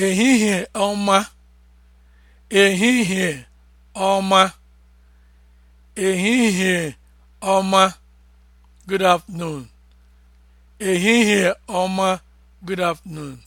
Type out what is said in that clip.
ehihie ọma ehihie ọma ehihie ọma good afternoon ehihie ọma good afternoon